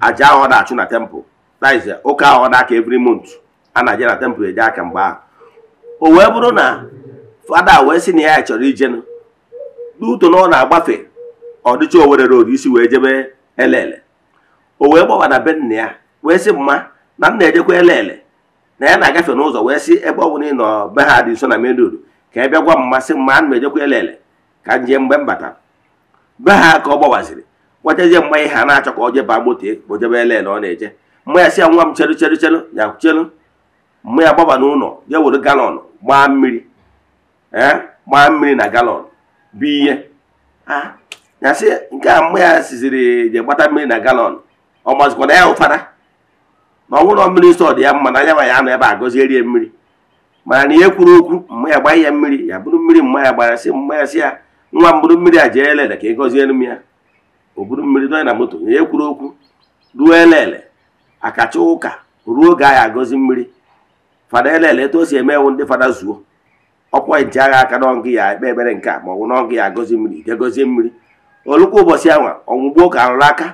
ahụ na-achụ na temple that is ụka uh, ahụ ọ aka every month a na-aje na temple eje aka mgbe ahụ o wee bụrụ na fada wee sị na ya chọrọ ijenụ duto na ọ na-agbafe ọdịcha dịcha Owerri isi wee jebe elele o wee na be nna ya wee sị mma na nna ejekwa elele na ya na-agafe n'ụzọ wee sị ebe ọ bụla ị nọ be ha dị nso na main road ka ebe bịa gwa mmasị masị mma ana m ejekwa elele ka m jee mgbe m batara be ha ka ọ gbawaziri gwachazie mgbe ihe a na-achọ ka ọ jeba moto ka elele ọ na-eje mụ ya si ya nwa m chelu chelu chelu ya chelu mụ ya gbaba n'ụlọ ya were galọn gbaa mmiri eh, gbaa mmiri na galọn bụ ihe ya si nke a mụ ya siziri je gbata mmiri na galọn ọ mazikwa na ya ụfara na ọnwụrọ mmiri nsọ dị ya mma na anya ya nọ ebe a gọzierie mmiri mana na ihe kwuru okwu mma ya gbaghị ya mmiri ya bụrụ mmiri mma ya gbara sị mma ya si ya nwa m bụrụ mmiri a jee elele ka ị gọziere m ya o buru mmiri dọnya na moto na ihe kwuru okwu ruo elele akacha ụka ruo oge anyị agọzi mmiri fada elele etu o si eme ndị fada zuo ọkwa nji agha aka n'ọngụ ya ekpe ebere nke a ma ọ bụ n'ọngụ ya agọzi mmiri je mmiri olukwa ụbọchị ahụ ọnwụgbo ka arụrụ aka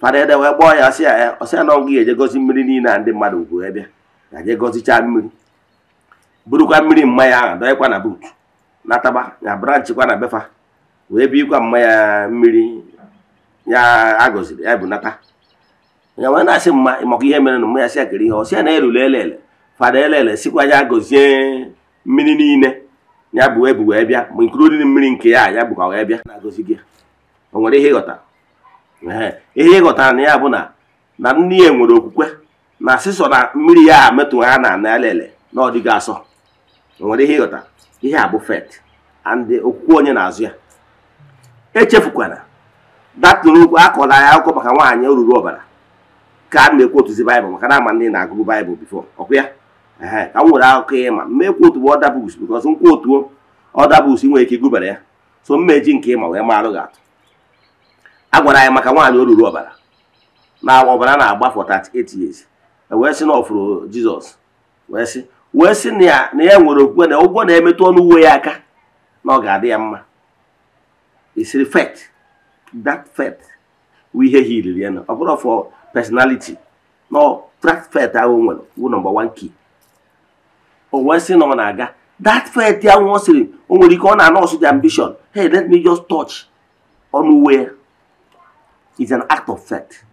fada ede wee gbọọ ya ọsị ya ọsị ya n'ọngụ ya ejegozi mmiri niile a ndị mmadụ ugwu ebịa ya jegozicha mmiri burukwa mmiri mmanya ahụ dọnyekwa na buutu nataba ya branchịkwa na befa wee bikwa mmanya mmiri ya agọziri ya bụ nata ya wee na-asị mma maka ihe mere na mma ya si akịrị ihe ọsịa na erule elele fada elele sikwa ya gozie mmiri niile ya bụ ebu wee bịa ma nkiri oriri mmiri nke ya ya bụkwa wee bịa na gị o nwere ihe ịghọta ihe ịghọtara na ya bụ na na nne ya nwere okwukwe na asịsọ na mmiri ya metụ ha na ana elele na ọ dịghị asọ o nwere ihe ịghọta ihe a bụ fet ndị okwukwe onye na-azụ ya echefukwana datụrụ okwu akọla ya akụkọ maka nwaanyị e ruru ọbara ka m ekwotuzi baịbụl maka na ama ndị na-agụbụ baịbụl bifo ọkwa ya ka m nwere akụkọ ya ma mmekwotuo ọda buks bikọs nkwa ọda buks nwere ike gụbara ya so mmeji nke ịma wee marụ gị atụ a gwara anyị maka nwaanyị oruru ọbara na ọbara na-agba for 38 years e wee sị na ọfụrụ jizọs wee sị wee sị na ya na ya nwere okwukwe na ụgwọ na-emetụ ọnụ uwe ya aka na ọ ga-adị ya mma isiri fet dat fet ihe ya na ọ bụrụ personality nọ fet ahụ nwere bụ nọmba wan key o wee sị na ọ na-aga that fet ahụ ọ sịrị o nwere ike ọ na-anọsụ the ambition hey let me just touch ọnụ uwe is an act of faith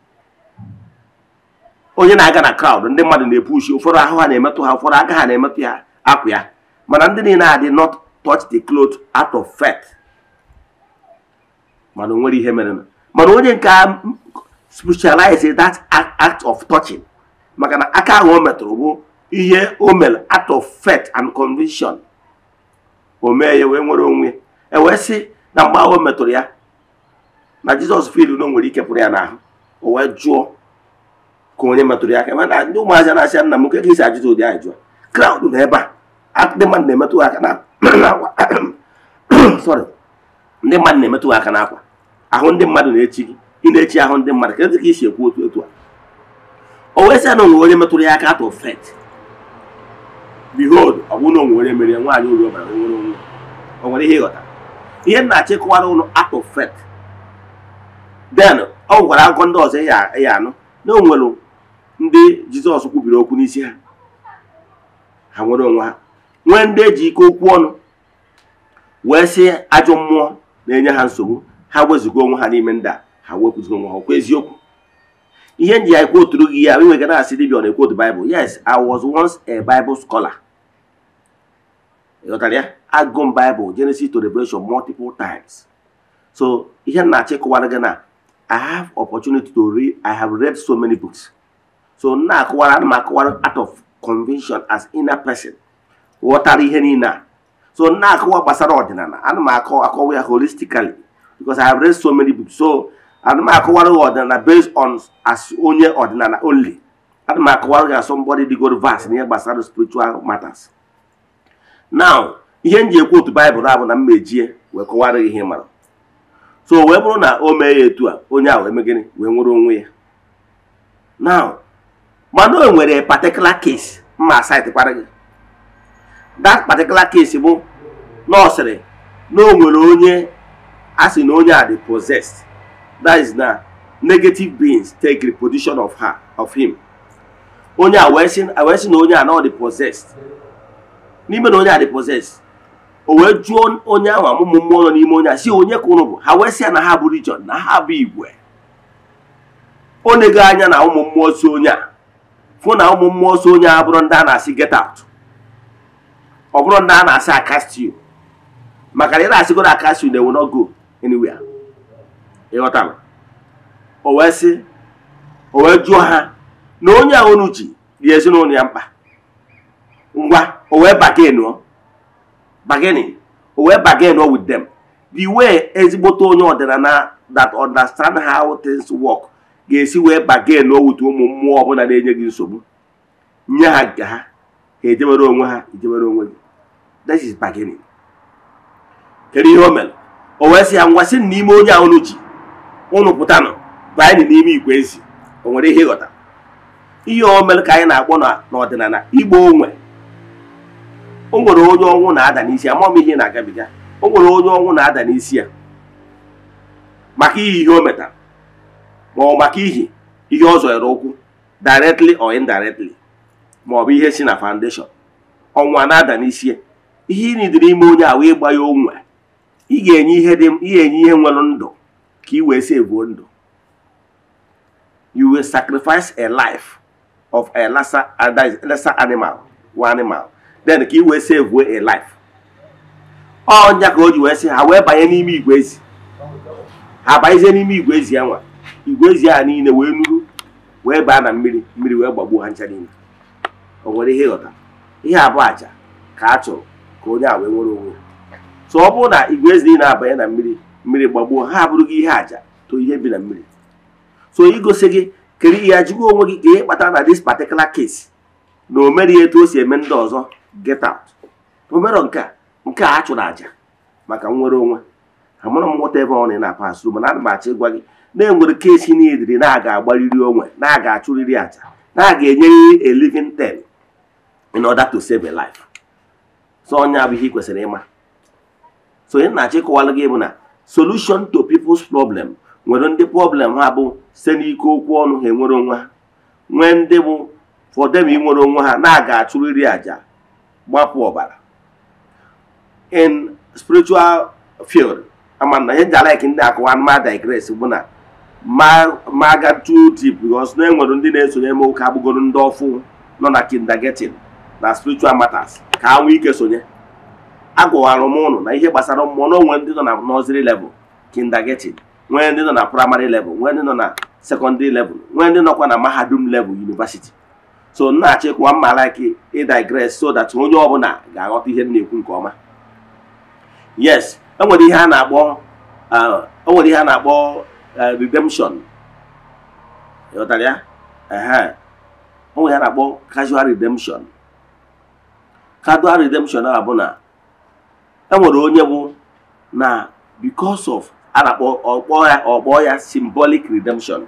onye na-aga na crowd ndị mmadụ na-epushi epu ụfọdụ ahụ ha na-emetụ ha ụfọdụ aka ha na-emetụ ya akwụ ya mana ndị niile adị not touch the cloth out of faith mana o nwere ihe mere mana onye nke spiritualize that act of touching maka na aka ahụ o metụrụ bụ ihe o mere act of faith and conviction o mee ya wee nwere onwe e wee sị na mgbe ahụ o metụrụ ya na jizọs fil na o nwere ike pụrụ ya n'ahụ o wee jụọ ka onye metụrụ ya aka ndị ụmụazị na-asị nna m nke ka isi ajụjụ ụdị ajụjụ kraụd na ebe a ndị mmadụ na-emetụ aka n'akwa ndị mmadụ na-emetụ aka n'akwa ahụ ndị mmadụ na-echi gị ị na-echi ahụ ndị mmadụ kedu ka isi ekwu otu otu a o wee sị na onwe onye metụrụ ya aka atụ fet behold ọ bụrụ na onwe onye mere nwaanyị ọbara nwere onwe o nwere ihe ịghọta ihe m na ụlọ atọ fet den ọ gwara akụkọ ndị ọzọ ya anụ na o nwere ndị jizọs kwubiri okwu n'isi ha ha nwere onwe ha nwee ndị eji ike okwu ọnụ wee sị ajọ mmụọ na-enye ha nsogbu ha wezuga onwe ha n'ime ndị a ha wepụziri onwe ha ọkwa eziokwu ihe nji ya kwoturu gị ya enweghị na-asị dibịa ọ na-ekwotu Bible yes I was once a Bible scholar ịghọtara ya agụ m Bible Genesis to Revelation multiple times so ihe m na-achị kụwara gị na I have opportunity to read I have read so many books so m na-akụwara ana m akụwara out of convention as inner person ghọtara ihe niile a so m na-akụwa gbasara ọdịnala ana m akọ akọwa ya holistically because I have read so many books so ana m akọwara gị ọdịnala based on as onye ọdịnala only ana m akọwara gị asọmbọdị dịgoro vast n'ihe gbasara spiritual matters now ihe m ji ekwu otu baịbụl abụ na mmejie wee kọwara gị ihe mara so wee bụrụ na o mee ya etu a onye ahụ emegịnị wee nwere onwe ya now mana o nwere particular case mma asaitikpara gị that particular case bụ nọọsịrị na o nwere onye a sị na onye a dị possessed that is na negative beings take reposition of her of him onye a wee sị na onye a na ọ dị possessed n'ime na onye a dị possessed o wee jụọ onye ahụ amụmụ mmụọ nọ n'ime onye a si onye ka ụnụ bụ ha wee sị ya na ha bụ region na ha bụ igwe o na anya na ụmụ mmụọ so onye a fụ na ụmụ mmụọ so onye a bụrụ ndị a na-asị get out ọ bụrụ ndị a na-asị akastiu maka na ị na-asịgo akastiu na-ewe no go anywhere ịghọtara o wee sị o wee jụọ ha na onye a unu ji dị ezinụlọ ya mkpa ngwa o wee bagenụọ bageni o wee bagenụọ with them the way ezigbote onye ọdịnala that understand how things work ga-esi wee bagenụọ with ụmụ mmụọ ọbụla na-enye gị nsogbu nye ha nke ha ka ejewere onwe ha ejewere onwe gị that is bargaining kedu ihe o mere o wee sị ya ngwa sị n'ime onye a unu ji unu pụta baa anyị n'ime igwe ezi o nwere ihe ịghọta ihe o mere ka anyị na-akpọ n'ọdịnala igbo onwe o nwere onye ọnwụ na-ada n'isi ama m ihe na-agabiga o nwere onye ọnwụ na-ada n'isi ya maka ihe ihe o metara ma ọ maka ihi ihe ọ zọrọ ụkwụ directly or indirectly maọbụ bụ ihe si na foundation ọnwa na-ada n'isi ihe ị nidiri ime onye ahụ ịgba ya onwe ị ga-enye ihe dị ị ga-enye ihe nwere ndụ ka ị wee sevuo ndụ you will sacrifice a life of a lesser, lesser animal one animal then ka ị wee sevuo a life ọnya ka o ji wee sị ha wee banye n'ime igwe ezi ha banyezie n'ime igwe ezi ya nwa igwe ezi ahụ niile wee nuru wee baa na mmiri mmiri wee gbagbuo ha ncha niile o nwere ihe ịghọta ihe abụọ aja ka a chọrọ ka onye a wee nwere onwe so ọ bụrụ na igwe ezi niile abanye na mmiri mmiri gbagbuo ha abụrụ gị ihe aja to ihe bi na mmiri so igosi gị kere ihe ajụgo onwe gị ka ihe kpatara na dis particular case na o mereghị etu o si eme ndị ọzọ get out omero nke a nke a chụrụ aja maka nnwere onwe amụrụ m nwụta ebe ọ na na-apa asụrụ mana ana m achọ ịgwa gị na-enwere kesi niile na aga agbariri onwe na aga achụrịrị aja na aga enyerịrị a living ten in order to save a life so onye abụghị kwesịrị ịma so onye na-achọ gị bụ na solution to people's problem nwere ndị problem ha bụ site n'ike okwu ọnụ ha enwere onwe ha nwee ndị bụ for them inwere onwe ha na-aga achụrịrị àjà gbapụ ọbara in spiritual field amana na ihe ji like ndị akụwa anụmanụ digress bụ na ma ga too deep because na enwere ndị na-esonye eme ụka agbụgoro ndị ọfụ nọ na kindergarten na spiritual matters ka ha nwee ike sonye agụwara m ụnụ na ihe gbasara mmụọ na onwe ndị nọ na nọziri level kindergarten nwee ndị nọ na praịmarị level nwee ndị nọ na sekọndịrị level nwee ndị nọkwa na mahadum level yunivasiti so na-achọ ịkwa mma like ịdigres so that onye ọbụla ga-aghọta ihe na-ekwu nke ọma yes enwere ihe a na-akpọ uh, enwere ihe a na-akpọ uh, redemption ịghọtara ya enwere ihe a na-akpọ casual redemption casual redemption a enwere onye bụ na because of a akpọ ya ọkpọ ya symbolic redemption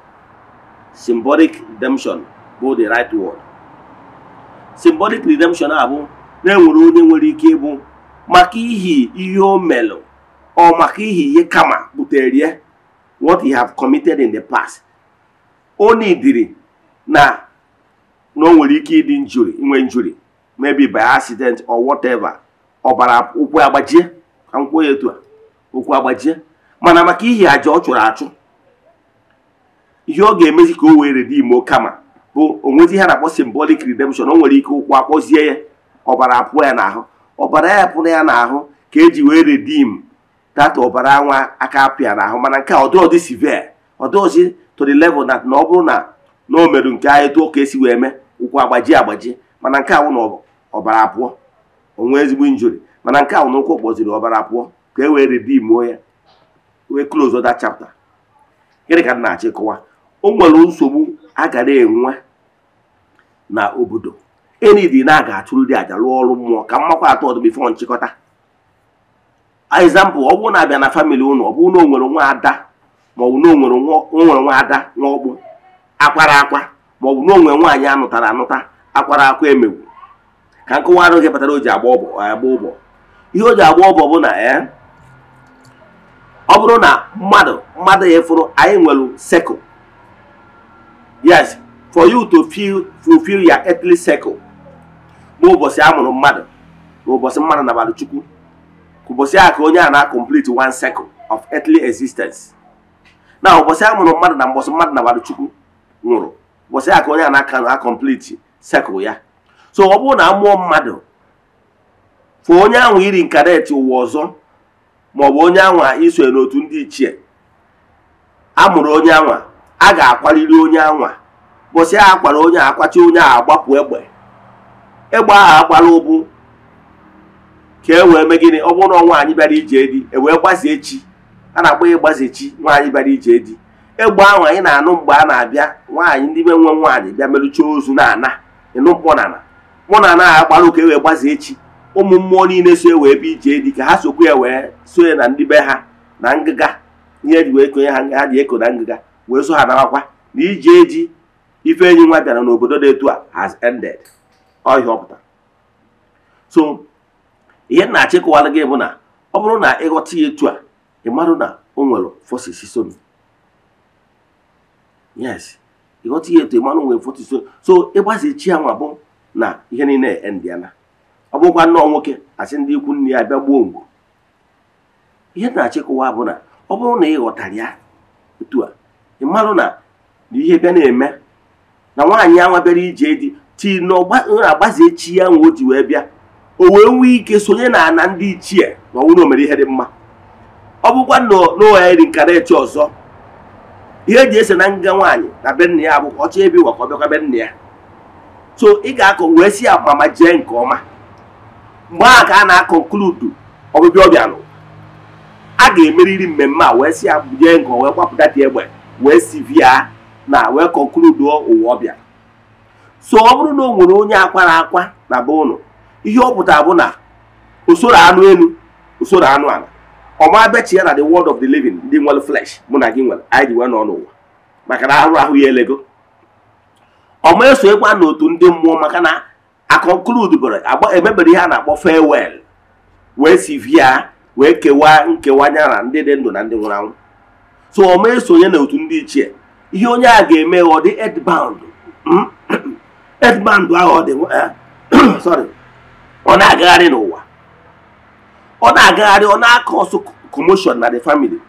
symbolic redemption bụ the right word symbolic redemption a bụ na enwere onye nwere ike ịbụ maka ihi ihe o melụ ọ maka ihi ihe kama butere ya what he have committed in the past o nidiri na na o nwere ike ịdị njuri inwe njuri maybe by accident or whatever. ọbara ụkwụ agbajie ka nkwụ ya etu a ụkwụ agbajie mana maka ihi aja ọ chụrụ achụ ihe ọ ga-emezi ka o wee dị imo kama bụ onwezi ihe na-akpọ simbolik redemption o nwere ike ụkwụ akpọzie ya ọbara apụọ ya n'ahụ ọbara ya pụrụ ya n'ahụ ka eji wee redim data ọbara nwa aka apịa n'ahụ mana nke a ọdịọdị severe ọdịọdị to the level na ọ bụrụ na na o merụ nke etu ọ ka esi wee mee ụkwụ agbaji agbaji mana nke a wụ na ọbara apụọ onwe ezigbo injuri mana nke ahụ n'ụkwụ kpọziri ọbara pụọ ka e wee ridimuo ya wee close ọda chapter gịnị ka na-achị kọwa o nwere nsogbu a ga na-enwe na obodo enidi na aga di aja rụọ ọrụ mmụọ ka mmakwa atọ ọdụ bifo nchịkọta example ọ bụrụ na abịa na famili ụnụ ọ bụrụ na o nwere nwa ada maọbụ na o nwere nwa ada nwa ọkpụ akwara akwa maọbụ na onwere nwere nwaanyị anụtara anụta akwara akwa emewu. ka nkụwa arụ gị kpatara o ji agba ọbọ agba ụbọ ihe o ji agba ụbọ bụ na ya eh, ọ bụrụ na mmadụ mmadụ ya fụrụ anyị nwere sekụl yes for you to feel fulfill your earthly circle n'ụbọchị a mụrụ mmadụ na ụbọchị mmadụ nabalị chukwu ụbọchị a ka onye a na-complete one circle of earthly existence na ụbọchị a mụrụ mmadụ na mbọchị mmadụ nabalị chukwu nwụrụ ụbọchị a ka onye a na-aka na complete circle ya so ọ bụrụ na mụọ mmadụ fụ onye ahụ iri nkareti ụwa ọzọ maọbụ onye anwa iso n'otu ndị ichie mụrụ onye anwa a ga-akwaliri onye anwa bụsị a kwara onye akwachi onye ahụ agbapụ egbe egbe ahụ agbara ụbụ ka e wee mee ọ bụrụ na nwaanyị bịara ije di e wee gbazie chi a na-akpọ ịgbaze chi nwaanyị bịara ije di egbe ahụ anyị na-anụ mgbe a na-abịa nwaanyị ndị be nwe nwaanyị bịa merụcha ozu na ana ịnụ mkpọ na ana mụ na anaghị agbara ụka ewee gbaze echi ụmụ mmụọ niile so e wee ebe ije dị ka ha sokwu ya wee so na ndị be ha na ngịga ihe eji wee konye ha nga ha ji eko na ngịga wee so ha narakwa na ije eji ife enyi nwa bịara n'obodo dị etu a has ended ọhịa ọpụta so ihe na achịkọwara gị bụ na ọ bụrụ na ịghọta ya etu a ị marụ na o nwere forces so yes ịghọta ya etu ị marụ nwere so ya nwa bụ na ihe niile endiana ọ bụkwa nnọọ nwoke asị ndị ikwu nne ya bịa gbuo mgbu ihe na-achịkọwa bụ na ọ bụrụ na ị ghọtara ya otu a ị marụ na ihe bịa na-eme na nwaanyị anwa bịara ije di ti na agbazie chi ya nwe o ji wee bịa o wee nwee ike sonye na ana ndị ichie na ọnwụ na omere ihe dị mma ọ bụkwa n'ụwa iri echi ọzọ ihe eji ese na nga nwaanyị na be nna ya abụkwa ọchọ ebi ịwa ka ọ bịakwa be nna ya so ị ga akọ wee si ya ma jee nke ọma mgbe a ka a na-akọnkludu ọbịbịa ọbịa nụ a ga-emeriri mmemme a wee si ya jee nke wee kwapụta dị egbe wee via na wee konkluduo ụwa ọbịa so ọ bụrụ na o nwere onye akwara akwa na be ụnụ ihe ọ pụtara bụ na usoro anụ elu usoro anụ ala ọma bechie na the world of the living ndị nwere flesh mụ na gị nwere anyị ji wee nọ n'ụwa maka na ahụrụ ahụ ya elego ọma esonyekwa n'otu ndị mmụọ maka na agba emebere ihe a na-akpọ fewel wee sivia wee kewaa nkewa nyara ndị dị ndụ na ndị nwụrụ anwụ so ọma esonye na otu ndị ichie ihe onye a ga-eme ọ dị edband hmm? edband ahụ ọ dị eh, ọ na-agagharị n'ụwa ọ na-agagharị ọ na-akọ ọsọ na the family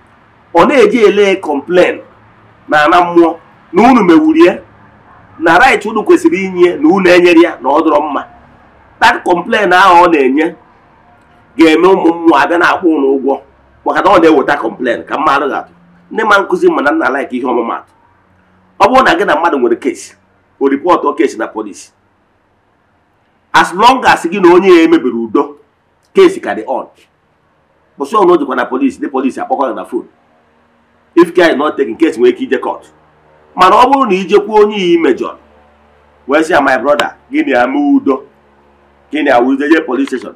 ọ na-eji ele complain na ana mmụọ na unu mewurie na right unu kwesịrị inye na unu enyere ya na ọ dọrọ mma that complain ahụ ọ na-enye ga-eme ụmụ mmụọ abịa na-akwụ ụlọ ụgwọ maka na ọ na-eweta complain ka mma ga-atụ ndị ma nkụzi mana na nna laik ihe ọmụmatụ ọ bụrụ na gị na mmadụ nwere kesi o ripọtụ kesi na polisi as long as gị na onye ya emebiri udo kesi ka dị on kpụsị ọnụ o jikwa na polisi ndị polisi akpọkọ na fon if care is not taken case nwere ike ije mana ọ bụrụ na jekwuo onye iyi mejọr wee sị ya my brother gịnị ama udo gịnị awụ udo steshọn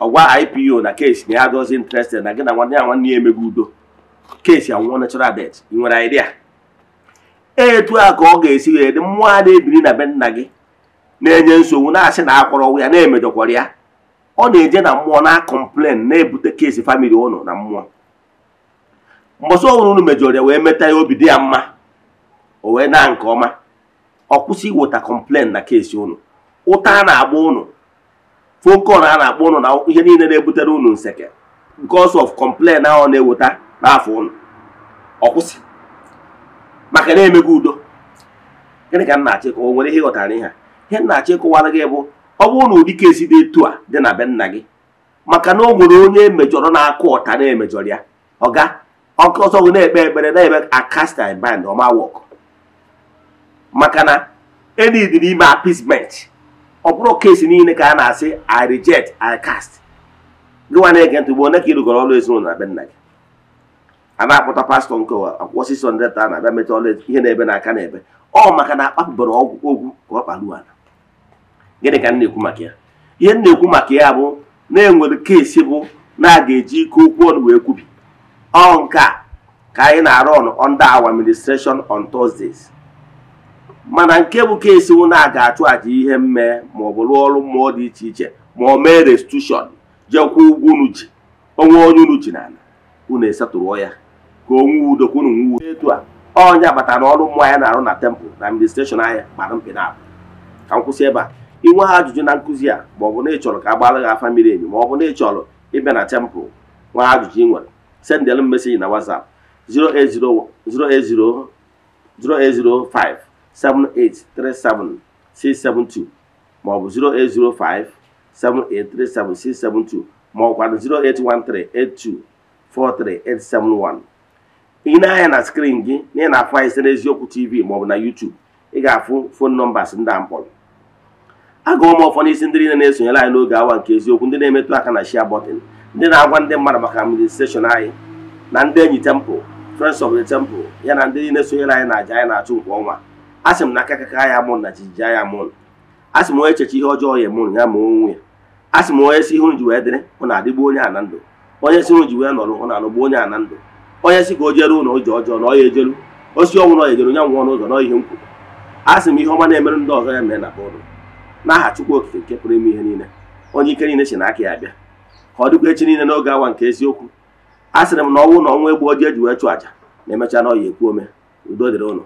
ọgwa ipo na kesi na ya dozi interested na gị na nwanne ya nwanne ya emegbu udo kesi anwụọ natural death ị nwere idea etu a ka ọ ga-esi wee dị mmụọ a na-ebiri na be nna gị na-enye nsogbu na-asị na akwọrọ ya na-emejọkwara ya ọ na-eje na mmụọ na-akọmplen na-ebute kesi famili ụnụ na mmụọ mbọsị ọhụrụ unu mejọrọ ya wee meta ya obi dị ya mma o wee na nke ọma ọ kwụsị iweta kọmplen na keesi ụnụ ụta a na-agba ụnụ fokon a na-akpọ ụnụ na ihe niile na-ebutere ụnụ nseke because of kọmplen ahụ na-eweta n'afọ ụnụ ọ kwụsị maka na-emego udo gịnị ka m na-achọ ịkọwa nwere ihe ịghọtara ihe a ihe m na-achọ ịkọwara gị bụ ọ bụrụ na ụdị keesi dị etu a dị na be nna gị maka na o nwere onye emejọrọ na-akụ ọta na-emejọrọ ya ọga ọkụ ọsọ gị na-ekpe ekpere na-eme akasta band ọma wọkụ maka na edid n'ime appeasement ọ bụrụ kesi niile ka a na-asị i reject i cast gịnwa na-ege ntị ugbo onye ka ịrụgoro ọrụ ezinụlọ na be nna gị a na-akpọta pastọ nke akwụkwọ six hundred a na-abịa meta ihe na-ebe n'aka na-ebe ọ maka na akpapụbara ọgwụ ogwu ka ọ kparuo ala gịnị ka m na-ekwu maka ya ihe m na-ekwu maka ya bụ na-enwere kesi bụ na a ga-eji ike okwu ọnụ wee kwubi ọ nke a ka anyị na-arụ ọnụ under our administration on Thursdays mana nke bụ kesi na a ga-achụ aja ihe mme ma ọ rụọ ọrụ mmụọ dị iche iche ma ọ mee restitushọn jekwuo ụgwọ unu ji onwe onye unu ji n'ala unu esetụrụọ ya ka onwe udo ka unu nwuo etu a onye batara na ọrụ mmụọ ya na-arụ na tempụl na administreshọn anya gbara mkpị na ka m kwụsị ebe a inwe ha ajụjụ na nkụzi a ma ọ bụ na ị chọrọ ka a gbara gị afa miri emi ma ọ bụ na ị chọrọ ịbịa na tempụl nwa ajụjụ ị nwere sendel m meseji na whatsapp 08005 08057837672 maọbụ 08057837672 maọbụkwanụ 08138243871 ị na-anya na skrin gị na ị na-afụ anyị site n'eziokwu tv maọbụ na YouTube ị ga-afụ fon nọmbas ndị a mkpọrọ agụ ụmụ ụfọdụ isi ndị niile na-esonyere anyị n'oge awa nke eziokwu ndị na-emetụ aka na shia bọtịn ndị na-agwa ndị mmadụ maka administreshọn anyị na ndị enyi temple friends of the temple ya na ndị niile sonyere anyị na aja anyị na-achụ nke ọnwa asị m na aka kaka ya mụrụ na jijija ya mụrụ asị m onye echeche ihe ọjọọ ya mụrụ ya ma onwe ya asị m onye si ihu ji wee dịrị ọ na-adịgbu onye a na ndụ onye si ihu ji wee nọrọ ọ na-anọgbu onye a na ndụ onye si ka o jere ụlọ oji ọjọọ na ọ ya ejelu osi ọnwụ na ejeru onye nwụọ n'ụzọ na ihe nkwuru asị m ihe ọma na-emerụ ndị ọzọ ya mee na bụrụ n'aha Chukwu Okike nke pụrụ ime ihe niile onye ike niile si na aka ya bịa ka ọ dịkwa echi niile n'oge awa nke eziokwu a sịrị m na ọnwụ na ọnwa egbu oji eji wee chụ àjà na emechaa na ọya ekwu ome udo dịrị ụlọ